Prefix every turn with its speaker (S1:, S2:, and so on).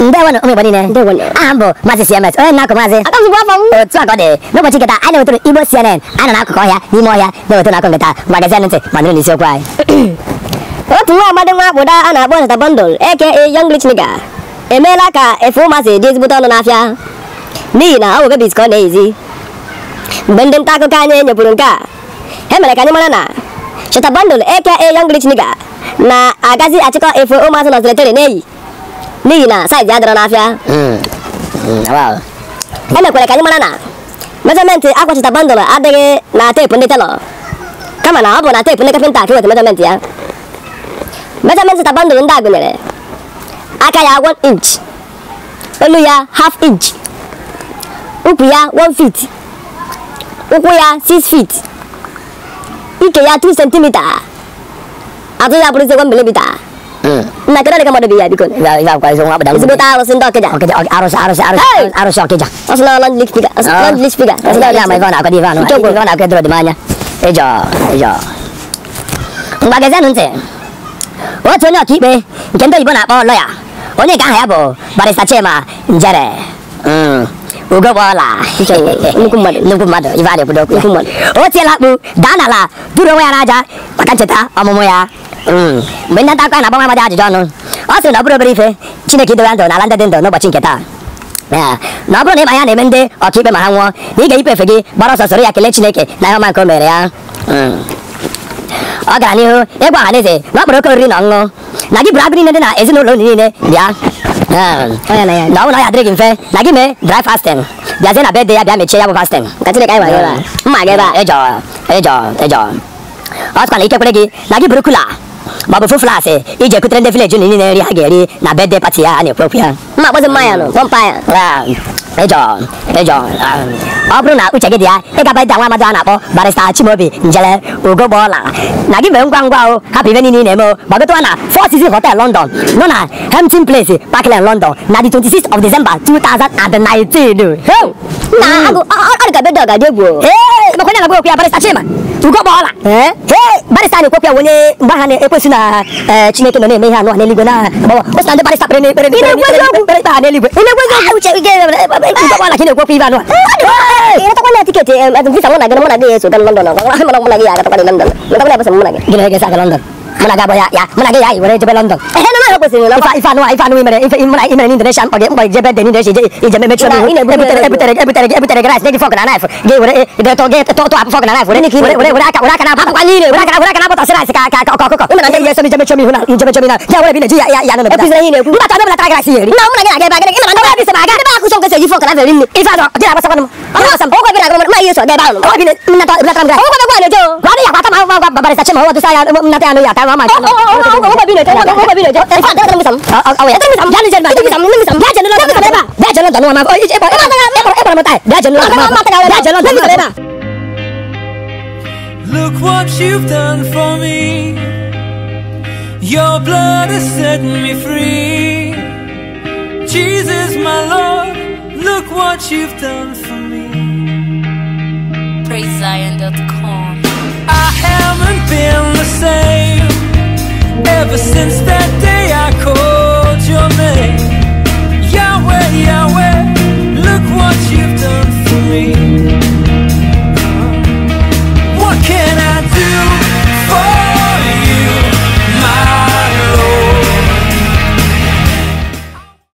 S1: ndewo ụmụ Igbo niile aha mbụ, bụ maazị CMS onye na-akụ maazị aka afọ m otu a ka ọ dị n'ụbọchị nketa anyị na-ewetụrụ Igbo CNN anyị na-akụkọ ọhịa n'ime ọhịa na-ewetụrụ akụ nketa magazin ntị ma nụrụ n'isiokwu anyị otu nwa ọgbadị nwa akpụda a na-akpọ Nzata Bundle aka Young Rich Niga. emeela ka efe ụmazị dị ezigbote ọnụ n'afịa n'ihi na ọ bụ bebis ka ọ na-eyizi mgbe ndị nta akụkọ anyị nyepụrụ nke a ha mere ka anyị mara na Shata Bundle aka Young Rich na-agazi achịkọ efe ụmụazị na ọzọletere n'eyi n'ihi na saịzị adịrọ n'afịa hmm. hmm. emekwere ka anyị mara na mejọmentị akwachita bandụl adịghị na teepu ndị telọ kama na ọ bụ na teepu ndị kapịnta ka iweta mejọmentị ya mejọmentị ta bandụl ndị a gụnyere aka ya 1 inch elu ya half inch ukwu ya 1 feet ụkwụ ya 6 feet ike ya 2 centimeter Aku ya perlu sekolah beli bita. Nah, kira kamu ada biaya dikun. Enggak, enggak, kalau semua bedang. Sebut harus untuk kerja. Oke, oke, harus, harus, harus, harus harus kerja. Asal lawan list tiga, asal lawan list tiga. Asal dia main kawan aku di mana? Coba kawan aku terus di mana? Ejo, ejo. Enggak kerja nunse. Wah, cuma kibe. Kento ibu nak bawa ya. Onye kan ya bo, baris tace ma, njere. Hmm. Uga bola. Nukumad, nukumad, ibade budok. Nukumad. Oh, tiela bu, dana la. Duro ya raja. Makan ceta, amomo ya. mgbe ndị nta akụkọ na-agbanwe amadị ajụjụ ọnụ ọ sịrị na ọ bụrụ obere ife Chineke idowe ndụ n'ala ndị dị ndụ n'ụbọchị nke taa na ọ bụrụ na ịma ya na-eme ndị ọkaikpe ma ha nwụọ na ị ga-eyipe efe gị gbara ọsọ soro ya kelee Chineke na ihe ọma nke o mere ya ọ gara n'ihu ịgwa ọha na eze na ọ kpọrọ oke oriri na ọṅụṅụ na gị bụrụ abụ niile dị na ezinụlọ unu niile bịa na ọ ọnwụ na ya adịrị gị mfe na gị mee dry fasting bịazie na bedde ya bịa mechie ya bụ fasting mma gị ebe a ịjọ ịjọ ịjọ ọ sịkwa na ike kwere gị na gị bụrụ kula mabufu flase ije kutrende vile juni nine eri ageri na birthday party ya ani propia mma kpozi mmanya nụ pọmpa ya ịjọ e ịjọ e ọ bụrụ na uche gị dị ya ị gaba ịda nwa amadị a na-akpọ barista chimobi njele ugogbola na gị mee ngwa ngwa o hapụ ibe niile ị na-eme o gbagotụwa na four season hotel london nọ na hempton place parkland london na the 26 of december 2019 na mm. agụ ọ dịka bedọ ga dị egwu nakwenda na wewe ya Barista Chima. Tuko bora. Eh? Hey, Barista ni kwa wenye mbaha na eh, Chineke na neme hano ne ligwe na baba. Basi ndio Barista prene prene. Ile kwezo Barista ne ligwe. Ile kwezo uche a tuko bora kile kwa pia hano. Ile takwenda London. London. mụ na abụ ya ya mụ na gị ya anyị were jebe London ife anụ ife anụ imere ife mụ na imere n'Indonesia mkpọ ije meme chụọ n'ihu ebutere ebutere gị fọk na e, naịf gị were gị na naịf were were were aka were na na ji ya ya nọ n'obodo mba na na gị na-aga ebe aga gị na na na m na agụrụ ma ihe ma Look what you've done for me Your blood has set me free Jesus my Lord Look what you've done for me PraiseZion.com since that day I called your name Yahweh, Yahweh Look what you've done for me